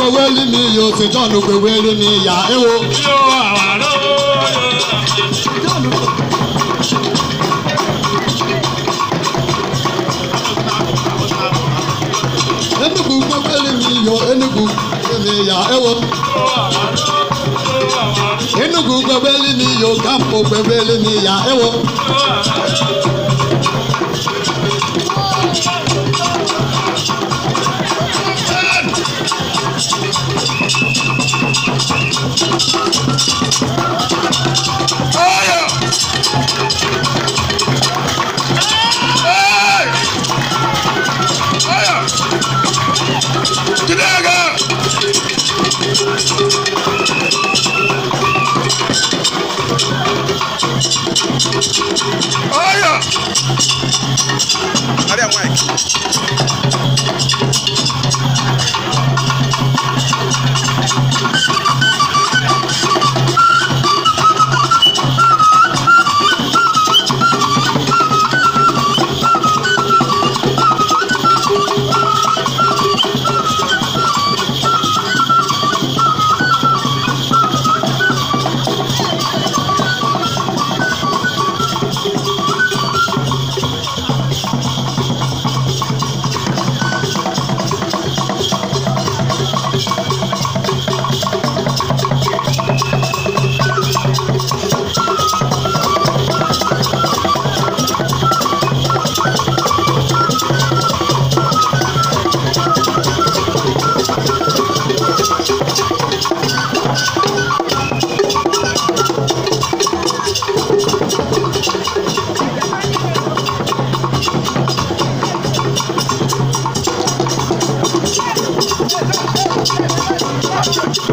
gbowó rí mi yóò fi jọ́ọ̀nù gbowó rí mi yà é wo. yóò àwárọ̀. enugu gbogbo rí mi yọ enugu rí mi yà é wo. enugu gbogbo rí mi yọ gáàpù gbogbo rí mi yà é wo. Thank you.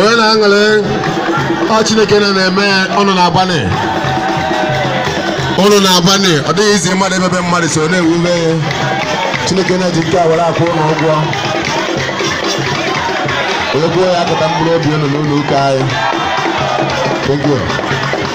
onye na-aṅụrị ọ chineke na na-eme ọnụ na ụnụ na-agbanị ọ dịghị izi mmadụ ebebe mmadụ so na-ewube chineke na-eji nke awara akwụ ụlọ ụgwọ onye kwuo ya kata mkpụrụ obi ụnụ n'ụlọ ụka anyị